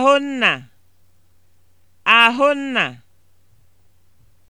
Ahụnna, Ahụnna